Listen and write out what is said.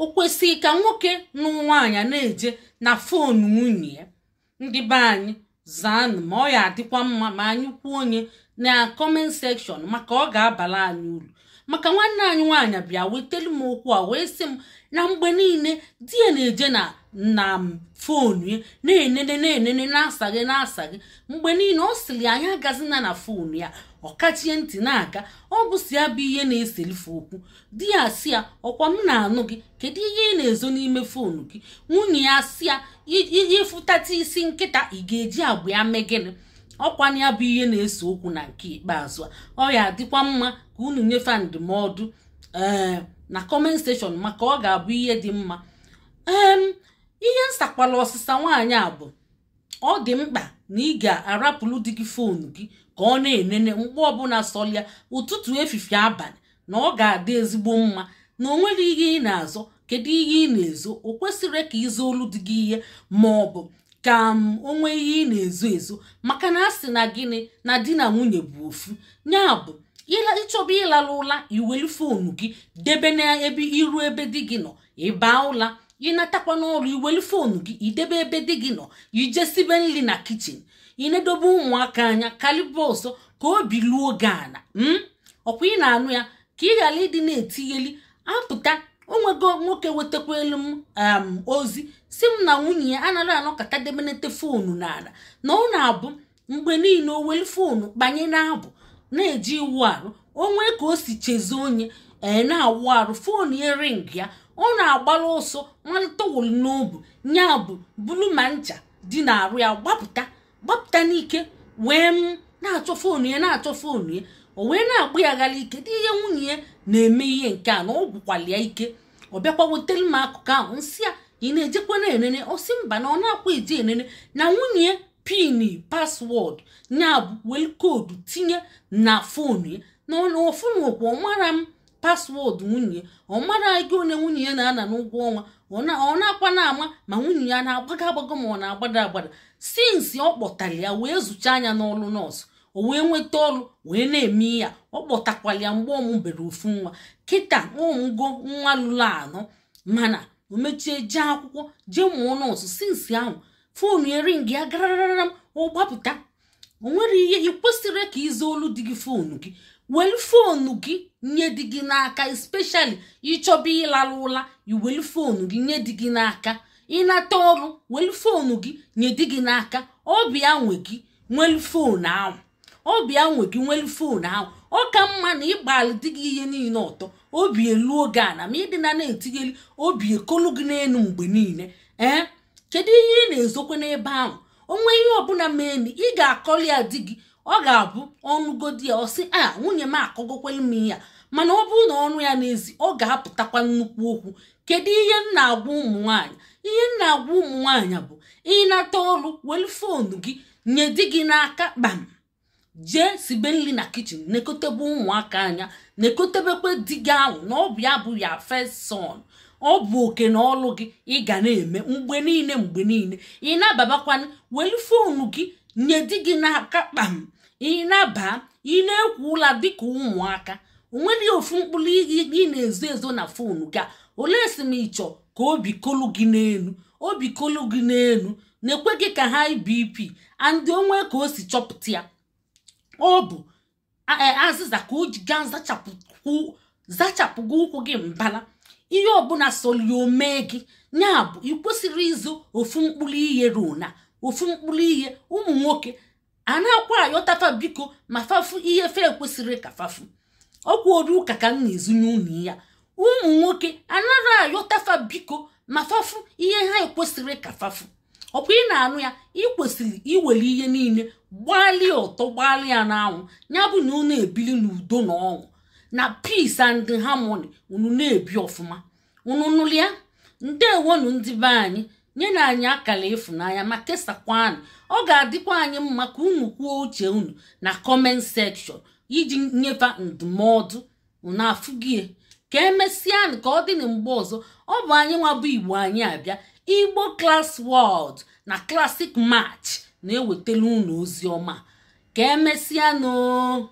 o kwesịghị ka nwoke n'ụwa anya na-eje na fon nwunye ya ndị be anyị ma ọ ya adịkwa mma ma anyị kwuo onye na kọment sekshọn maka ọ ga-abala anyị uru maka nwanne anyị nwaanyị bịa wetelu m okwu a wee sị m na mgbe niile di ya na-eje na na fonu ya na-enene na-enene na asaghị na-asa gị mgbe niile ọ sịrị anyị agazina na fonu ya ọ kachie ntị na-aga ọ bụsi ya bụ ihe na-eselife okwu di ya si ya ọkwa m na-anụ gị kedu ihe ị na-ezo n'ime fonu gị nwunye ya si ya ịfụtata isi nkịta ị ga-eji agbụ ya mee gịnị ọkwana ya bụ ihe na-ese okwu na nke ikpeazụ ọ ya adịkwa mma ka unu nyefe ndụmọdụ ee eh, na kọment steshọn maka ọ ga-abụ ihe dị mma ee ihe nsakwala ọsịsa nwaanyị a bụ ọ dị mkpa na ị ga-arapụrụ gị foonu gị ka ọ na-enene mgbe ọbụla sọlịa ụtụtụ efifie abalị na ọ ga-adị ezigbo mma na o nwere ihe ị na-azọ kedu ihe ị na-ezo o kwesịrị ka ịzụ olu dị gị ihe ma ọ bụ ka m onwe ihe ị na-ezo ezo maka na a sị na gịnị na di na nwunye bụ ofu ya bụ ịchọba ịlara ụla iwelu foonu gị debe n'ebe iru ebe di gị nọ ịbaa ụla ịnatakwa n'ọrụ iwelu foonu gị idebe ebe di gị nọ ijesibe nri na kichin ịnedobe ụmụaka anya kalibe ọsọ ka obi luo gị ana m hmm? ọkwa ị na-anụ ya ka ị ghara ịdị na etinyeli apụta onwego nwoke elu m um, ozi si m na nwunye ya anaghị kata demenete foonu n'ala na ọ na-abụ mgbe niile o welu foonu kpanye na-abụ na-eji iwu arụ onwe ka o si chezie onye ee eh, na-awụ arụ foonu ya ring ya ọ na-agbara ọsọ nwata wụrụ n'obu nya bụ bulu ma ncha dị na-arụ ya gbapụta gbapụta n'ike wee m na-achọ foonu ya na-achọ foonu ya o wee na-agba ya gara ike dị ihe nwunye ya na-eme ihe nke a na ọ gwụkwala ya ike ọ bịakwa wetara m akụkọ ahụ nsị a ị na-ejekwa na enene ọ mba na ọ na-akwa eji enene na nwunye pin na ya wel koodu tinye na fonu na ọfụnụkwa ọ mara m paswọọdụ nwunye ọ mara gị onye nwunye ya na-ana n'ụgwọ ọnwa ọ na-akwa na-ama ma nwunye ya na-agbago agbago ma ọ na-agbada agbada nsi ọ kpọtara ya wee zụcha anya n'ọlụ nọọsụ o wee nweta ọrụ wee na-eme ya ọ kpọtakwala ya mgbe ọmụbere ofu nwa kịta ụmụgo nwa lụrụ anọ mana o mechie jee akwụkwọ jee mụọ nọọsụ sinsi ahụ foonu eringi ya gararara m gbapụta o nwere ihe ị kwesịrị ka ịza olu dị gị foonu gị welu fonu gị nye dị gị n'aka especially ịchọba ịlara ụla iwelu gị nye dị gị n'aka ịnata ọrụ welu fonu gị nye dị gị n'aka ọbịa nwe gị nwelu foonu ahụ obi ya nwe gị nwelu fon ahụ ọ ka mma na ịgbalị dị gị ihe niile ọtọ obi elu oge a na ma ịdị na na-etinyeli obi ekolu gị n'elu mgbe niile ee kedu ihe ị na-ezokwa n'ebe ahụ onwe ihe ọbụla meni ị ga-akọli ya di gị ọ ga-abụ ọnụgodi ya ọ a ah, nwunye m akọgokwelu m ya mana ọ bụrụ na ọnụ ya n'ezi ọ ga-apụtakwa nnukwu okwu kedu ihe m na-agwa ụmụ nwanyị ihe m na-agwa ụmụ nwanyị bụ ịnata ọrụ welu fonu gị nye di gị n'aka kpam jee sibe nri na kichin nekotebe ụmụaka anya nekotebekwe di gị ahụ na ọ bụ ya bụ ya first ọ bụ oke na ọlụ gị ị ga na-eme mgbe niile mgbe niile ị na welu foonu gị nye di gị n'aka kpam ị na-aba ị na-ekwu ụla dịka ụmụaka onweghị ofu mkpụrụ ị na-ezo ezo na foonu gị a olee si m ịchọ ka obi kolu gị n'elu obi kolu gị n'elu na-ekwe gị ka ha BP and onwe ka o si chọpụta ya ọ bụ e, azịza ka o ji zachapụ zachapụgo ụkwụ gị mbala ihe ọbụla soli mee gị ya bụ ị kwesịrị ịzụ ofu mkpụrụ ihe ruo ofu mkpụrụ ihe ụmụ nwoke a na-akwa ayọtafa biko ma fafu ihe fe kwesịrị ka fafu ọkwụoru ụka ka m na-ezu n'ụlọ ya ụmụ nwoke anaghị ayọtafa biko ma fafu ihe ha ekwesịrị ka fafu bụ ị na-anụ ya ị kwesịrị iwere ihe niile gbalịa ụtọ gbalịa n'anwụ ya bụ na unu ebili n'udo na ọṅụ na peace and harmony unu na-ebi ọfụma unu nụlịa ndewonu ndị be anyị nyena anyị akara ịfụnanya ma anyị ọ ga-adịkwa anyị mma ka unu kwuo uche unu na comment section iji nyefe ndụmọdụ na afụgie ka emesịanụ ka ọ dị na mgbe ọzọ ọ bụ anyị nwa bụ igbo anyị abịa igbo class world na classic match na-ewetala unu ozi ọma ka emesịa nụ